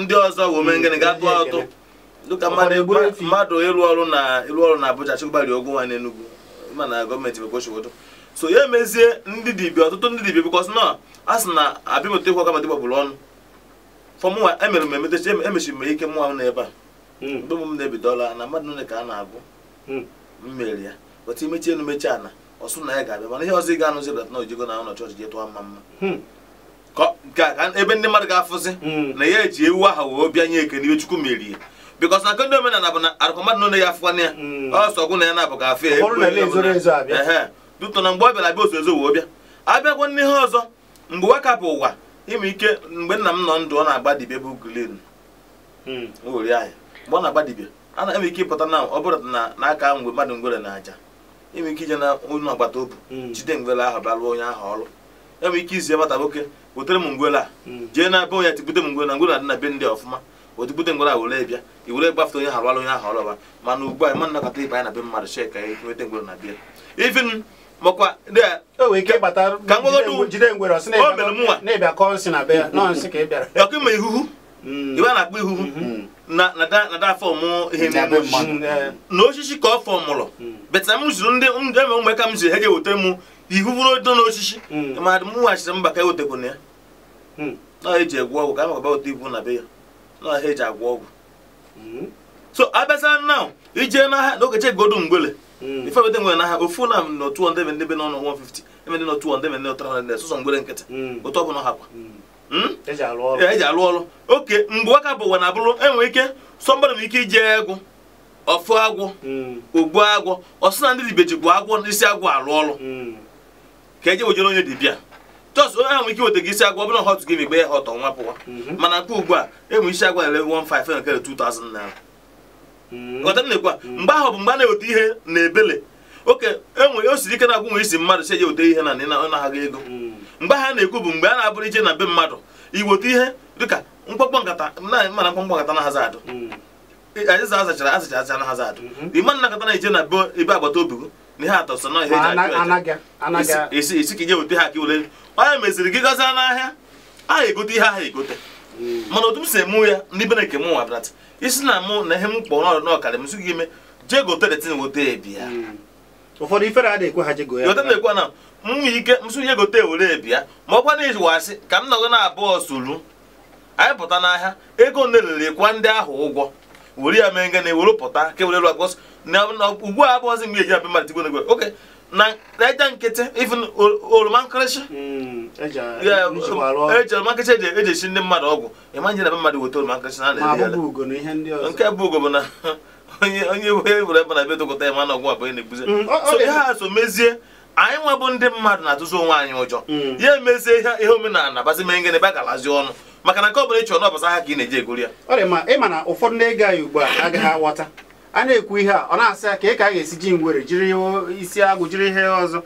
ndị ọzọ womengịnị ga tụọ atụ dịka mmadụ ịrụ ọrụ na ịrụ ọrụ na Abuja chụgbari ogwu nwa n'Enugu mana gọọmenti bekwochiwodo so ya emezie ndị dibi ọtụtụ ndị dibia bikọs na a sị na abịamụta ikwu ọkamadị gbagburu ọnụ fọmụnwa emere m emetechi emechiri e m ike mụnwa m n'ebe a hmm. mgbe m na-ebidola na mmadụ nne ka a na-agụ mmeri hmm. ya weta imechi elu mechi ana ọsụ na ya ga-abịa mana ihe ọzọ ị ga-anụzi bụ na ojigo na ụlọ chọọchị jee tụọ mma mma hmm. ebe ndị mmadụ ga-afụzi hmm. na ya eji ewu aha wee bịa nye eke n'ibe Chukwu merie bikọs na nke omenala bụ na arụkọ mmadụ nọ ya afụkwana ya hmm. ọsọ gwụ na ya na-abụ ka afọ ya dutọ na mgbe ọ bịara abịa ozo ezo wee bịa abịakwa n'ihe ọzọ mgbe waka bụ ụwa ime ike mgbe nna m nọ ndụ ọ na agbadibe bụ glen ori ahịa mgbe ọ na agbadibe ana m ike ịpụta na ọ bụrụ na aka mgbe mmadụ ngwere na aja enwere ike ije na onye agbata obi hmm. jide ngwele ahụ bịa lụọ onye ahụ ọrụ enwere ike izi agbata nwoke wetere m ngwele a hmm. jee na be onye tipụta m ngwele na ngwele na be ndị ọfụma otipụta ngwele a were bịa i were gbafete onye ahụ alụ onye ahụ ọrụ mana ugbu a ma nnakọta ibe anyị na be mmadụ shek ka anyị e nweta ngwele na e bịa ifin makwa ọkụ ma ihuhu ibe hmm. a na-akpọ ihuhu Eh, na osisi ka ọ fọ mụrụ hmm. beta m zụrụ ndị eme ụmụ ka m ziri ha ga-eweta m ihu bụrụ do n'osisi hmm. madụ m weghachiri mba ka ewetakwana ya hmm. na eji egwu ọgwụ ka a makaba weta ibu na be ya na ha eji agwọ ọgwụ so abịaza na ije na okeche godu mgbele ife nwere n'ahịa ofu na m na ndị ebe n'ọnụ 150 ebe ndị n'otu ndị ebe n'otu 300 nkịtị otu ọ ha kwa Hmm? eji alụ ọrụ e oke mgbe ụka bụ ụwa na abụrụ enwere ike sọ mmadụ nwere ike iji egwu ọfụ agwọ hmm. ogbu agwọ ọsụ na ndị ji bụ agwọ isi agwọ alụ ọrụ hmm. ka eji wejere onye dibịa jọs onye ahụ nwere ike weta isi agwọ ọ bụrụ hot gị mgbe ya hot ọnwa pụwa mana nke ugbu a enwe isi agwọ ele 15 nke 2000 naira ghọta nnekwa mgbe ahụ bụ mgbe a na-eweta ihe na ebele oke enwere o siri ike na agwụ nwere isi mmadụ si eji weta ihe na na-ahaghị ego mgbe ha na-ekwu bụ mgbe a na-abụrụ ije na be mmadụ iweta ihe dịka mkpọkpọ nkata mana mkpọkpọ nkata na hazi adụ hmm. azacha azachara azachara azacha na hazi adụ hmm. ịma nna nkata na-eje na ebe agbata obi gị na ihe atọ sọ na ihe eji esi ka ije weta ha ka iwere onye meziri gị gazie n'ahịa aha egote ihe aha egote mana otu m si emu ya ndị bena nke m nwa brata isi na mụ na ihe m kpọrọ n'ọkara m sụghị ime jee gote detin wote ebi ya hmm. ụfọdụ ifere a na-ekwe ha jego ya nwe ike nsonye gote ewere bịa ma ọ kwa na asị ka m nọgọ na abụọ suru anyị pụta n'ahịa ego nelere kwa ndị ahụ ụgwọ were ya mee ngana ewere pụta ka ewere ugbu a abụọzi mgbe eji abịa mmalite nego oke na eja nkịtị even oroma nkịrịsị hmm, eji oroma eji esi ndị mmadụ ọgwụ ịma nje na mmadụ weta oroma na nke bụ ugo na onye were ebe na na ọgwụ abụọ na-ebuzi a hmm, so e, anyị nwebụ ndị mmadụ na-atụzi onwe anyị ụjọ hmm. ya emezie ihe omenala bazi mee ngene ba ọnụ maka na nke ọbụla ịchọrọ n'ọbasa ha ka ị na-eji egori ya ịma na ụfọdụ na-ege anyị ugbu a agaghị aghọta a na-ekwu ihe a ọ na-asị ka ị ka a ga-esi ji ngwere jiri isi agwụ jiri ihe ọzọ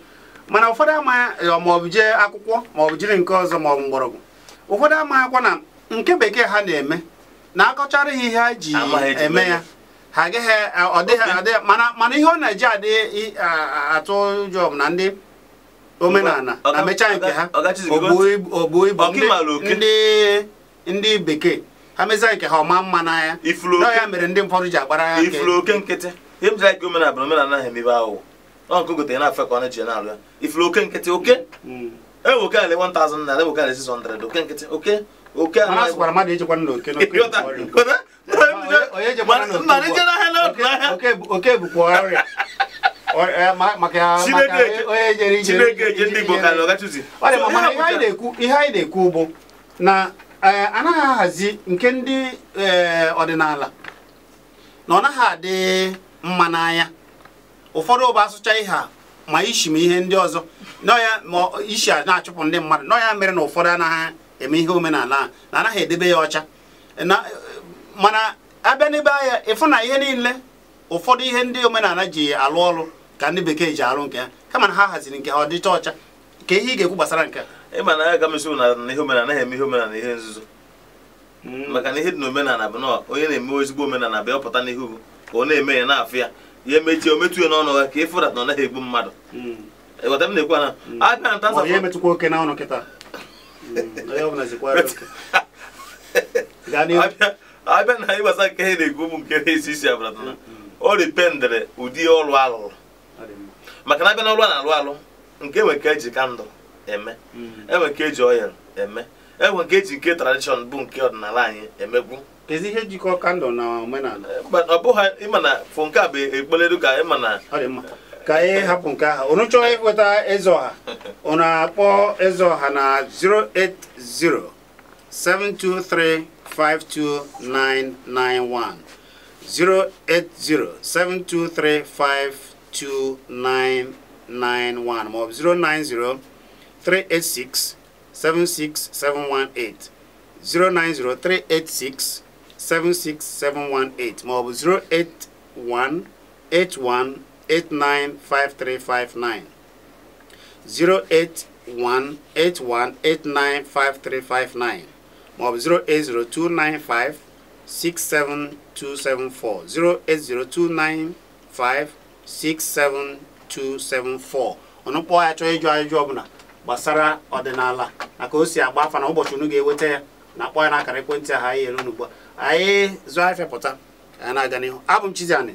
mana ụfọdụ amaghị maọbụ jee akwụkwọ maọbụ jiri nke ọzọ maọbụ mgbọrọgwụ ụfọdụ amaghịkwa na nke bekee ha na-eme na akọchara ihe ha ji eme ya ha ge he ọ dị ha dị mana mana ihe ọ na-eji adị atụ ụjọ na ndị omenala na mechaa nke ha ogbuo ibu ndị ndị bekee ha mechaa nke ha ọma mma n'anya na ya mere ndị mfọdụ ji agbara ya ifuru oke nkịtị ihe m jiri aka omenala bụ omenala ha emebe ahụ ọ nke gotere na afọ ka ọ na-eji na-alụ ya ifuru oke nkịtị oke hmm. ewu oke ala 1000 na ala ewu oke ala 600 oke nkịtị oke oke bụkwa ọrịa ihe anyị na-ekwu bụ na eh, anaghị ahazi nke ndị ọdịnala eh, na ọ naghị adị mma n'anya ụfọdụ ụba asụcha ihe a ma ishi ma ihe ndị ọzọ ya ma ishi na-achụpụ ndị mmadụ nọ ya mere na ụfọdụ anaghị eme ihe omenala na anaghị edebe ya ọcha mana abịa n'ebe anya ịfụ na ihe niile ụfọdụ ihe ndị omenala ji alụ ọrụ ka ndị bekee ji alụ nke ha kama na ha haziri nke ha ọ dịcha ọcha ka ihe ị ga-ekwu gbasara nke a ịma na ya m esi na ihe omenala anaghị eme ihe omenala ihe nzuzo hmm. maka na ihe dị na omenala bụ na onye na-eme ezigbo omenala bịa ọpụta n'ihu ka ọ na-eme ya na-afụ ya ya emechi o metu ya n'ọnụ ha ka ịfụrat na ọ naghị egbu mmadụ hmm. ịghọta m na-ekwu na abịa nta nsa abịa na ihe gbasara nke ihe na-egwu bụ nke na-esi isi abatana o ụdị ọrụ alụrụ maka na abịa na ọrụ a na-alụ alụ nke enwe ka eji kandụl eme mm. enwe ka eji ọyel eme enwe nke eji nke tradishọn bụ nke ọdịnala anyị emegwu ezi ihe jikọ kandụl na omenala ọ bụghị ịma na nke eh, a bụ ekpeledu ka ịma na ka anyị hapụ nke ahụ unu chọọ ịkpọta e eze ọha akpọ eze ọha na 386 76718 maọbụ 09038676718 09038676718 maọbụ 08181 08181895359 08181895359 ma ọ bụ 08029567274 08029567274 ọnụ kpọọ ya chọọ ịjụ ajụjụ ọbụla gbasara ọdịnala na o si agba afa na ụbọchị unu eweta ya na akpọ ya na akara ekwentị ahụ anyị elu n'ugbu a anyị zụọ afịa anyị na-aga n'ihu abụ m Chiziani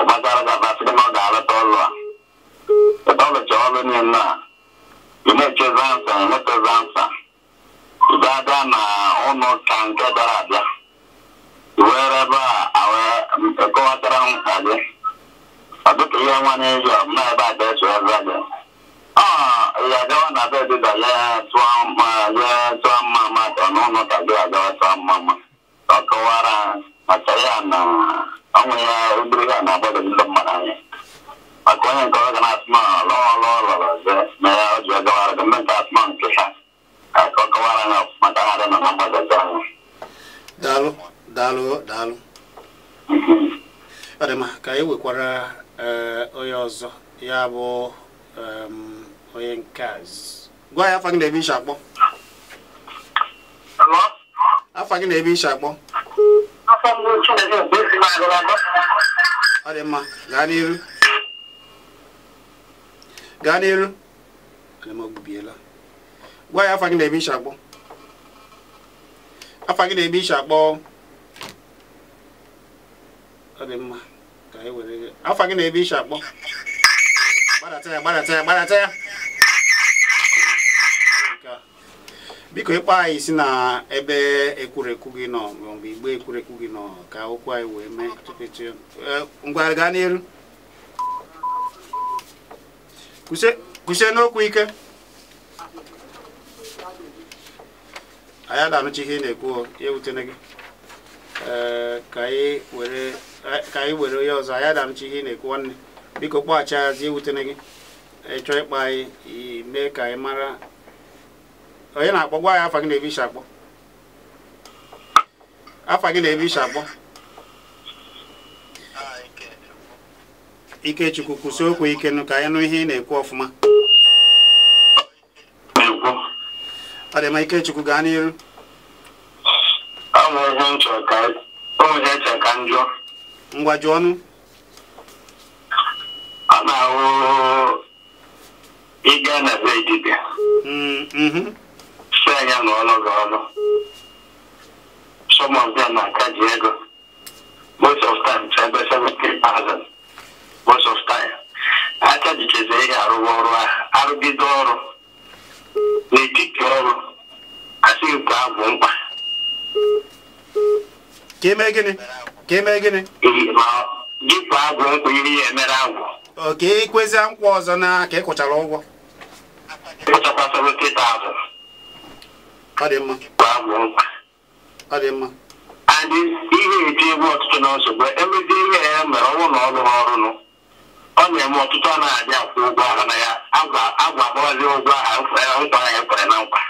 ọbagbara ga-abasịrị na ọ ga-alọta ọlụ a ebe ọ lụcha ọrụ niile a imechezi ansa emechezi ansa abịa na ụlọ ka nke bịara abịa iwere ebe a wee kọwatara m gị ọ dịka ihe nwanye eji ọbụna ebe a eso eze gị ya gawa na be dịda ya tụọ mma ma ọ n'ụlọ ka gị agawa tụọ mma ma ọ kọwara maka ya na onwere obere ha na-agbado ndị mmadụ anya maka onye nke ọ lọrọ ọzọ na ya ọ ji ọgawara gị mme nke nke ha ka ọ kọwara anya maka ha dị nọ na mgbagọzi anya daalụ daalụ daalụ ka nwekwara onye ọzọ bụ onye gwa ya afa gị ebe akpọ afa gị na-ebe akpọ ọmọ Chineke mgbe esi m agụlọgọ ọ dị mma gaa n'iru gaa n'iru ogbubiela gwa ya afa gị na-eme iche akpọ afa gị na-eme iche akpọ ọ dị mma ka anyị were afa gị na-eme iche akpọ gbadata ya gbadata ya gbadata ya biko ịkpọ anyị si na ebe ekwurekwu gị nọ mgbe igbe ekwurekwu gị nọ ka okwu anyị wee mee tupetu e, ngwa gaa n'elu kwụsie n'okwu ike anyị adanụcha ihe ị na-ekwu ya ewutene gị e, e, ka anyị were onye ọzọ anyị adanụcha ihe ị na-ekwu nwanne biko kpọghachi azi ewutene gị ịchọọ ịkpa anyị mee ka anyị mara onye na-akpọ gwa ya afa gị na ebi isi akpọ afa gị na-ebe isi akpọ Ikechukwu kwụsị okwu ikenụ ka anyị nụ ihe ị na-ekwu ọfụma ọ dị mma Ikechukwu gaa n'iru e ngwa jụ ọnụ a na-ahụ ịga na be dibịa mm, mhm. si anya na ọnụ gị ọnụ some of them na-akaji ego most of time to ebe thousand most of time akajichezi ihe arụwa ọrụ arụgide ọrụ n'etiti ọrụ asịghị nke abụ mkpa ka eme gịnị ka eme gịnị dịkwa agwụ nkwụ iri ya emere agwụ oke ikwezi nkwa ọzọ na ka ị kwụchara ụgwọ ịkwụchakwa 70,000 ọ dị mma ọ mma adị ihe eji egwu ọtụtụ na nsogbu emezi ihe ya mere ọnwụ na ọrụ ọrụnụ ọ na-eme ọtụtụ ọ na-adị akwụ ụgwọ ahụ na ya agwa agwa agbabazi ụgwọ ahụ nkwa ya kwere na nkwa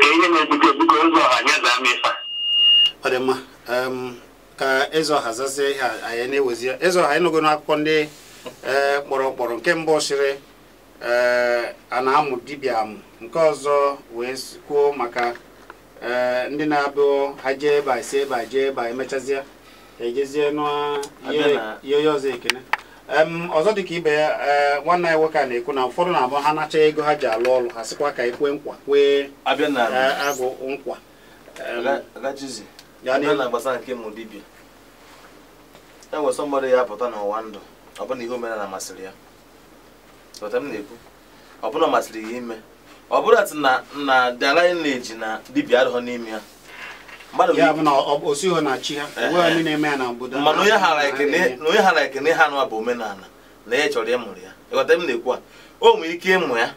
ka ihe na-ebute ebute ụzọ ọha nye zaa mefa ọ ka eze ọha zazie ihe anyị na-ewezi eze ọha ịnụgo n'akwụkwọ ndị eh, kpọrọ kpọrọ nke mbụ sịrị eh, a na-amụ dibịa amụ nke ọzọ wee kwuo maka e, ndị na-abụ ha jee ebe a si ebe a jee ebe a emechazịa ejezie n'ihe ọzọ ekene ọzọ dị ka ibe ya e, nwanne ya nwoke a na-ekwu na ụfọdụ na-abụ ha nacha ego ha ji alụ ọrụ ha sịkwa ka ekwe nkwa kwee e, agụ nkwa gbasara nke mụ dibịa e nwere sọ mmadụ ya pụta n'ụwa ndụ ọbụna ihe omenala masịrị ya ọbụna masịrị ya ime ọ bụrụ atụ na na dalineji na dibia adịghọ n'ime ya mana onye hara ekene ha nụwa bụ omenala na ya chọrọ ịmụrụ ya ịghọta m na-ekwu a o nwere ike ịmụ ya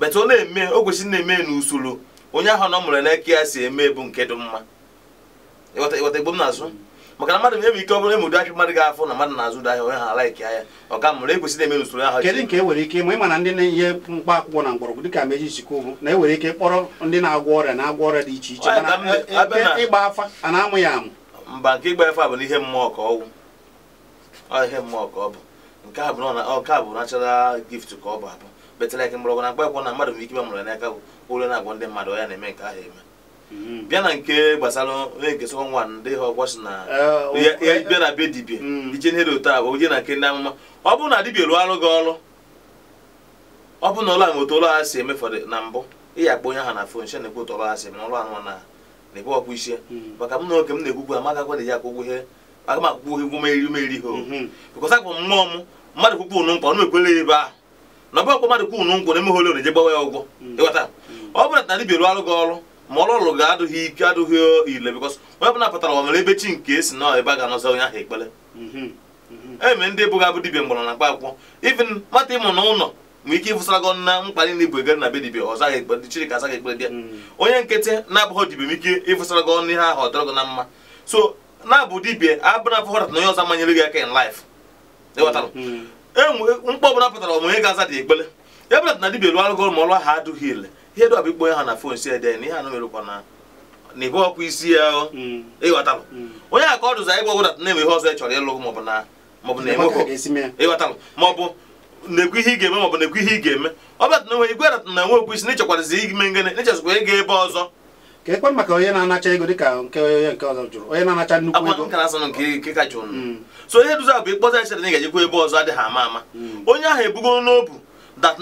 bete ọ na-eme o kwesịrị na-eme n'usoro onye ahụ nọ mụrụ n'eke ya si eme bụ nke dị mma ịghọta igbo m na-azụ maka na mmadụ na-ewe ike ọ bụla emudu ahịa mmadụ ga-afụ na mmadụ na-azụ ụdọ ahịa onye ha ahịa ọ ka mụrụ ekwesịrị eme n'usoro ahụ kedu nke e nwere ike ịma ịma na ndị na-enye mkpa akwụkwọ na mgbọrọgwụ dịka meji sikwu na e nwere ike kpọrọ ndị na-agwọ ọrịa na-agwọ ọrịa dị iche iche e, e, ịgba afa a na-amụ ya amụ mba nke ịgba afa bụ n'ihe mmụọ ka ihe mmụọ ka ọ bụ nke a bụ ka ọ bụ abụ mgbọrọgwụ na mkpa na mmadụ nwere ike na-eme nke ahụ eme Mhm. bịa na nke gbasara na-ekesịkwa nwa ndị ha si na eh, bịa na be dibie. Mm. ije nhere otu a bụ je na nke ndị amụma ọ bụrụ na dibia rụọ arụ gị ọrụ ọ bụrụ na ụlọ ahụ otu ụlọ ha si na mbụ ị onye ha na fon she na otu ụlọ ha si eme na ụlọ na na-ekwu ọkpụ m na oge m na-ekwukwu amagakwa na ya akwụgwọ ihe aga m akwụkwọ ihe mm-hmm. m mmadụ ọ na ebe arụ mm. mm. gị ọrụ ma ọrụ ọrụ ga-adụghị ike adụghị ile bikọs onye bụ pụtara ọ nwere ebe chi nke esi nọ ebe a ga-anọzi onye ahụ ekpere mhm, mhm. e eme ndị bụghị abụ dibia mgbọrọ na mkpa akwụkwọ ivin mata ịmụ ụlọ nwee ike ịfụsara gị na mkpa niile bụ egere na bedibi dibia ọzọ ahụ ekpere chiri ka azaghị ekpere bịa mhm. onye nkịtị na-abụghị dibia ike ịfụsara gị ọnụ ihe ahụ so na-abụ dibia abụna aka in ịghọtara e ọbụla onye ga-aza dị ekpere dibia lụọ ma ọlụ ahụ adụghị ile ihe dụ abịkpọ ha na fon si ede na ihe anụ merụkwa na ibe ọkwa isi ya mm. ịghọtalụ mm. onye aka ọ dụzi anyị gbọgwụda na-eme ihe ọzọ ị chọrọ ịlụ maọbụ na maọbụ na eme ịghọtalụ maọbụ na-ekwu ihe ị ga-eme maọbụ na-ekwu ihe ị ga-eme ọ bụ na igwe na nwe okwu isi ime ngene ego ebe ọzọ na-anacha ego na-anacha nnukwu ego na nke nke ka mm. na ebe ọzọ adịghị ama ama onye ahụ ebugo n'obu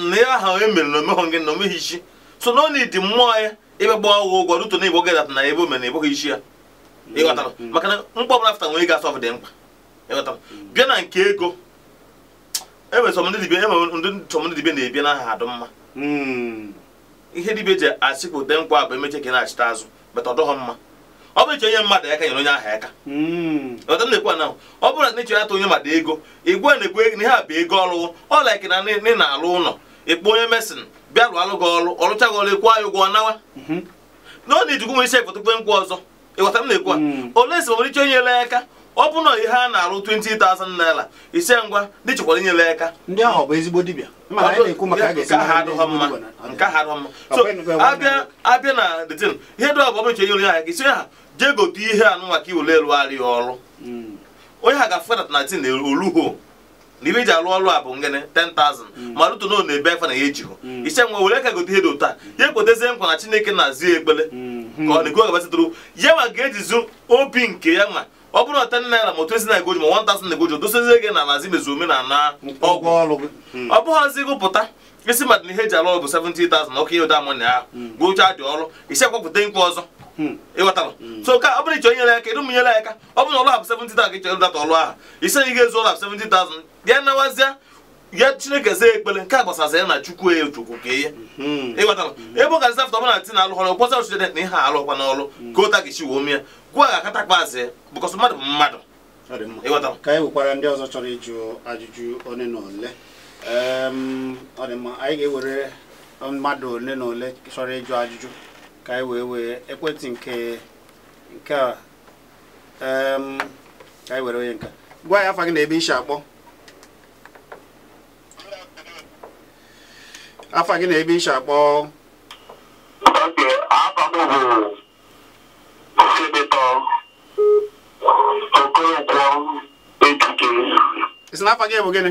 na ya aha e na na omeghị so na ọ na mmụọ ya ebe gba ọgwụ ụgwọ ruto na igbo gị na ebe omena ebụghị isi ya ịghọtara maka na mkpọ bụla fụta nwere gasọf dị mkpa ịghọtara bịa na nke ego enwere ndị sọmdị na ebi n'aha adụ mma ihe dibịa ji asịkpụte nkwa bụ emechi ka na-achịta azụ bata ọdọghọ mma ọ bụrụ onye mmadụ aka nyere onye aha aka ọta na-ekwu ọ na onye mmadụ ego igwe na-ekwu na ihe a bụ ego ọlụwụ ọ laiki na ị na-alụ ụlọ onye mesin bịa rụọ gị ọrụ ọrụchaghị ọrụ ekwu anyị ụgwọ nawa mhm. na ọ na-ejikwu nwe isi efotukwe nkwụ ọzọ ịghọta m na-ekwu a mhm. ole esi nwere ike nyere aka ọ bụ na ihe a na-arụ 20,000 naira ise ngwa dị chịkwara inyere aka ndị ahụ bụ ezigbo dibịa abịa na detin ihe dị ọbụ ọbụche nyere ha ha jee gote ihe anụ maka iwere elu arịa ọrụ mhm. onye ha ga-afụkọtata na tin oluho na ibe iji ọrụ a bụ ngịnị 10,000 mm. ma rụtụ na ọ na-ebe afa na ya ejighụ mm. ise nwa were ka gote ihe dị ụtọ ya mm. ekwetezie nkwa na chineke na-azụ ya ekpele mm-hmm. ka ọ na-ego gabatịtụrụ ya ma ga-ejizu obi nke ya ma ọ bụrụ na ten naira ma twenti naira goji ma one thousand goji dosozie gị na mazi mezu omenala ọgwụ ọ bụghịzi gụpụta isi mmadụ na ihe eji alụ ọrụ bụ 70,000 ọkụ ihe ụda amụnya ahụ gụchaa dị ọrụ isi akwapụta nkwa ọzọ Hmm. ịghọtara hmm. so ka ọ bụrụ iche ya aka ya aka ọ bụrụ na ọlụ abụ 70,000 ka ịchọrọ data ọlụ ahụ isi na ga-ezu ọlụ abụ 70,000 ya nawazịa ya chineke zaa ekpere nke a gbasara ya na chukwu ya chukwu ka ihe hmm. ịghọtara ebe ọ ga afta ọbụla ti na alụghọrọ na ihe alụkwa n'ọlụ ka ụta gị chi wee gwa ga akata azị bụkọsọ mmadụ mmadụ ka anyị ndị ọzọ chọrọ ịjụ ajụjụ one na ole ehm, anyị ga-ewere mmadụ chọrọ ka anyị wee wee ekwentị nke nke a ka anyị were onye nka gwa ya afa gị na ebe isi akpọ afa gị na ebe isi akpọ isi na afa gị bụ gịnị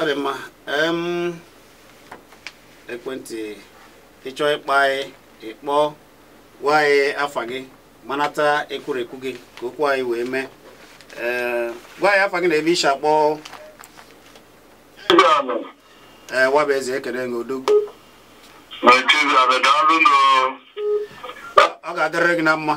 ọ dị mma ekwentị ịchọ ịkpa anyị ịkpọ gwa anyị afa gị manata ekwurekwu gị ka okwu anyị wee mee gwa anyị afa gị na ebe ishi akpọ ee nwabụ eze ekele gị odogwu ọ ga-adịrị gị na mma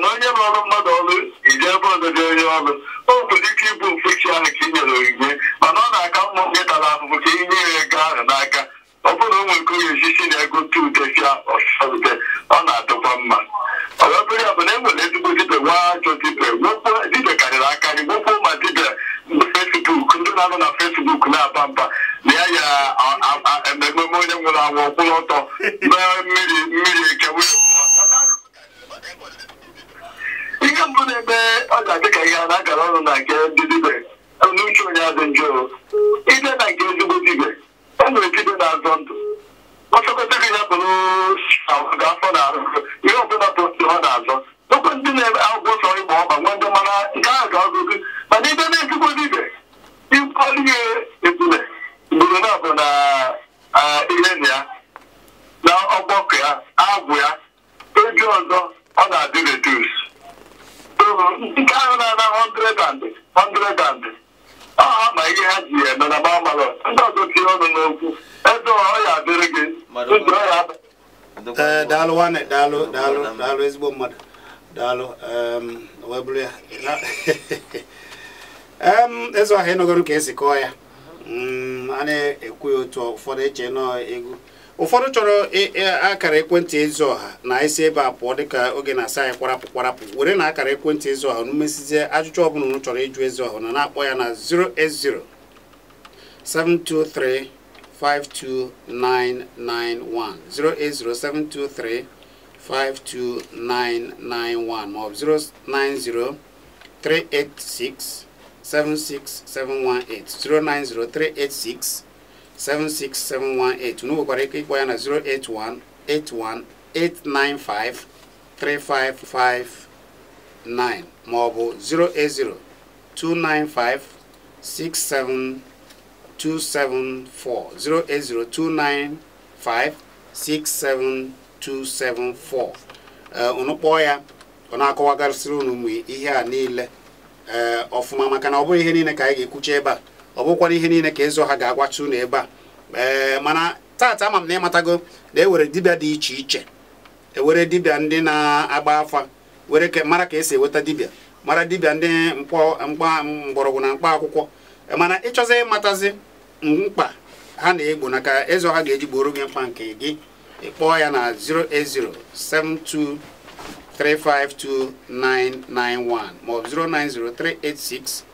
maka na onye ọrụ mmadụ ọrụ iji ebe ododo onye ọrụ o nwere ike ịbụ mkpuchi ahụ ka ị nyere onyinye mana ọ na-aka mma gị tara ahụhụ ka inye ya ego ahụ n'aka ọ bụrụ na o nwere ka onye osisi na ego tu udesia ọsọrute ọ na-adịkwa mma ọbịabụrụ ya bụ na e nwere ezigbo dibịa nwa ajọ dibịa nwekwa dibịa karịrị akarị nwekwuo ma dibịa fesbuk ndị na-anọ na fesbuk na-aba mba na ya ya ememe onye nwụrụ anwụ kwụrụ ọtọ mee mmiri mmiri eke ihe mbụ na-eme ọ ga-adị ka ihe a na-agara ọrụ na nke ndị dibe n'uche onye adị njọ ide na nke ezigbo dibe e nwere dibe na-azọ ndụ ọsọkọta gị ya bụrụ afọ na arụ ihe ọbụla bụ ọ na-azọ okwe ndị na-eme agwụgwọ sọ ịgba ọba nwa ndị mara nke ahụ ga-agụgụ mana ide na ezigbo dibe ịkpọrọ ihe ebule ugboro na bụ na ihe na ya na ọgbọkọ ya agwụ ya oge ọzọ ọ na-adị redus ndị ka ahụ na-ana 100 100 ọha ma ihe ha ji eme na gbamalọ ndị ọzọ tinye n'okwu ebe ọ ya adịrị gị ndị eh, daalụ nwanne a na-ekwu ya otu ụfọdụ eche egwu ụfọdụ chọrọ akara ekwentị ezi ọha na isi ebe a pụọ dịka oge na-asa anyị kwarapụ kwarapụ were na akara ekwentị ezi ọha n'umesizie ajụjụ ọbụla unu chọrọ ịjụ ezi ọha na na-akpọ ya na 080 723 52991 723-52991 maọbụ 090-386-76718 76718 unoko kwa na 081 81 3559 ma ọ 08029567274 unu kpọọ ya ihe a niile ọfụma eh, maka na ọ bụghị ihe niile ka anyị ga-ekwucha ebe a ọ bụkwara ihe niile ka ịzụ ha ga-agwachi unu ebe a ee mana taata ama m na ịmatago na ewere dibịa dị iche iche e were dibịa ndị na-agba afa were mara ka esi enweta dibịa mara dibịa ndị mkpa mgbọrọgwụ na mkpa akwụkwọ mana ịchọzi ịmatazi mkpa ha na-egbo na ka ịzụ ha ga-eji gboro gị mkpa nke gị ịkpọọ ya na 08072 352 991 ma ọ bụ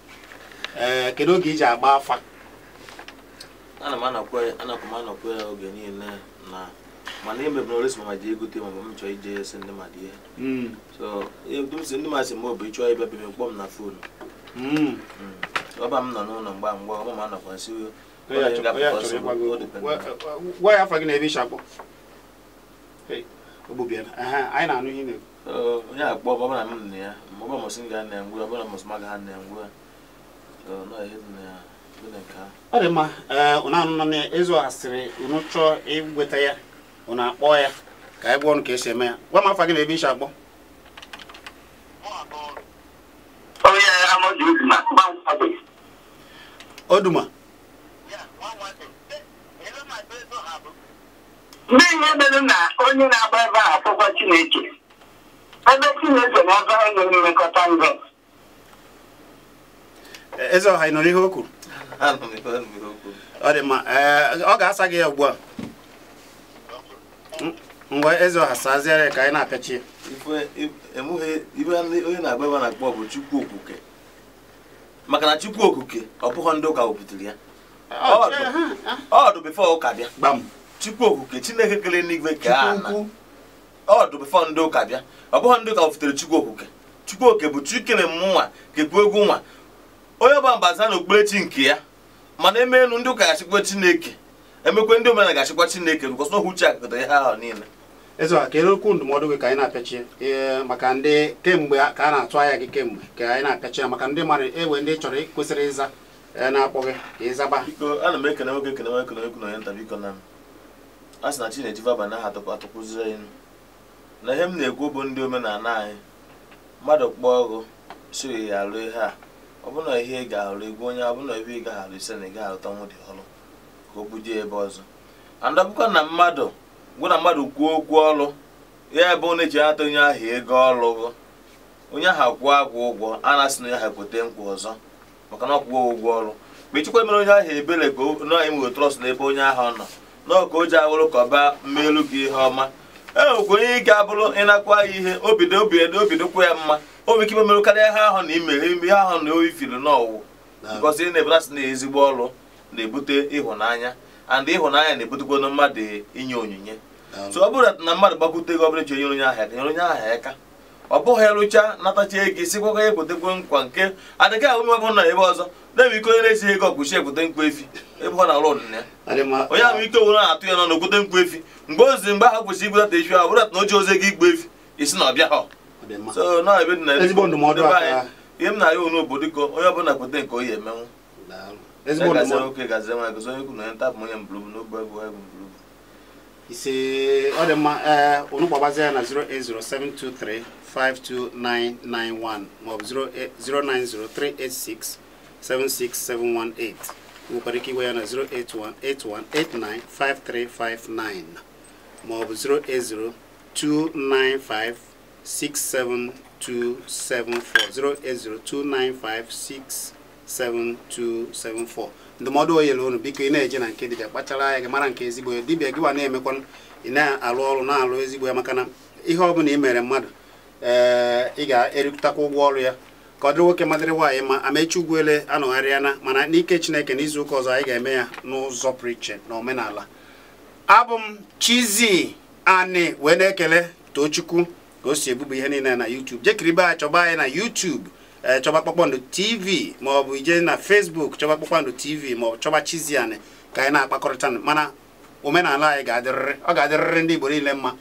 Eh, kedu oge iji agba afa ana m anakwa anakwa ya oge niile na mana emebere oresi mama ji egote ma m chọọ ije si ndị mmadụ ihe so e, si ndị mmadụ si m bụ ịchọọ ịbịa bịa kpọọ m na fon. Hmm. Hmm. ọba m nọ n'ụlọ mgba mgba ọba m anakwa nsi gwa ya afọ gị na ebe ịchakpọ anyị na-anụ ihe na-ekwu onye akpọ ọbara m na ya ọbara mụsị ga na-engwe ọbara mụsị maga ha na-engwe ọ dị mma ụnụ anụnụ na ịzụ asịrị ụnụ chọọ ịgweta ya ụnụ akpọ ya ka anyị gwa ọnụ ka esi eme ya gwa m afa gị na ebe isi akpọ oduma ndị ihe mere na onye na-agba ebe a afụkwa chineke ebe chineke na ebe anyị nwere mmekọta eze ọha ị ihe o kwuru ọ dị mma ọ ga-asa gị ya ugbu a mgbe eze ọha saziere ka anyị na-apịachi onye na-agba na-akpọ bụ Chukwu okwukwe maka na Chukwu okwukwe ọ bụghị ndị ụka wepụtara ya ọdụ bifọ ụka bịa Chukwu ndị ụka ọ bụghị ndị ụka wepụtara Chukwu Chukwu bụ egwu nwa onye ọba mbaza na okpukperechi nke ya mana eme elu ndị ụka ga-achịkwa chineke emekwe ndị omenala ga-achịkwa chineke because n'ohu uche akụkọta ihe ahụ niile eze kedu okwu ndụmọdụ gị ka anyị na-apịachi ee maka ndị kemgbe ka a na-atụ anya gị kemgbe ka anyị na-apịachi ya maka ndị mmadụ ewe ndị chọrọ kwesịrị ịza e, na-akpọ gị ka ịzaba ana m ekene nwoke ekene nwoke na na onye nta biko na m a sị na chineji vaba na aha atụkwa anyị na ihe m na-ekwu bụ ndị omenala anyị mmadụ kpọọ ọgụ siri ya alụ ihe a ọbụna ihe ị ga-arụ egwu onye ọbụna ebe ị ga-arụ ise na ị ga-arụtanwu dị ọrụ ka o bujie ebe ọzọ andọbụkwa na mmadụ gwụ na mmadụ kwuo okwu ọrụ ya ebe ọ na-eji ata onye ahụ ego ọrụ onye ahụ kwụọ agwụ ụgwọ a na-asị na onye ahụ kwete nkwa ọzọ maka na ọkwụwo ụgwọ ọrụ mgbe mere onye ahụ ebere ka na imo trọst ebe onye ahụ nọ n'ọka o ji awụrụ ka ọ baa mmeelu gị ihe ọma e nwekwa onye ike abụrụ ịnakwa ya ihe obido obido obidokwa ya mma o ike imemerụ karịa ihe ahụ na ime ihe ahụ na ifiri n'ọwụ because ị na-ebela na ezigbo ọrụ na-ebute ịhụnanya and ịhụnanya na-ebutekwana mmadụ inye onyinye so ọ bụrụ na mmadụ gbakwute gị ọbụla ji nyere onye ahịa nyere onye ahịa aka ọ bụghị rụcha natacha ego sikwa ya ekwetekwe nkwa nke adịghị ahụ ebe na ebe ọzọ na ebe ike onye na-esi ego ọgwụchi ekwute nkwa efi ebe ọ na-alụ ọdịna ya onye ahụ ike nwere na-atụ ya na okwute nkwa efi mgbe ozi mgbe ahụ kwụsị igwetata efi ahụ bụrụ na o ji ozi ego igbu efi isi na ọbịa ha so na ebe dị na ezigbo ndụmọdụ aka ihe m na-arịa onye obodo ka onye ọbụla kpete nke onye emenwu ezigbo ndụmọdụ oke gazie nwa gozi onye kwu na onye ntapụ onye mbụrụbụ n'ogbe egwu egwu mbụrụbụ ise ọ dị mma ee unu gbagbazie ya na 08072352991 maọbụ 09038676718 nwekwara ike iwe ya na 08181895359 maọbụ 0802955 67274 08029567274 ndụmọdụ na unu biko ị na-eje na nke dibịa kpachara anya gị mara nke ezigbo ya dibịa gị na-emekwa ị na-alụ ọrụ na-alụ ezigbo ya maka na ihe ọ bụla ị mere mmadụ ee eh, ị ga-erikụtakwa ụgwọ ọrụ ya ka ọ dịrị nwoke madịrị nwaanyị ma amechi ugwuele anọgharịa na mana n'ike chineke n'izu ụka ọzọ anyị ga-eme ya n'ụzọ pụrụ iche na omenala abụ m Chizzy Ani wee na-ekele Tochukwu ka o si ebubo ihe niile na YouTube jekiribe a chọba anyị na YouTube eh, chọba kpakpando TV maọbụ ije na Facebook chọba kpakpando TV ma chọba Chiziane ka anyị na-akpakọrịta mana omenala anyị ga-adịrịrị ọ ga-adịrịrị ndị Igbo niile mma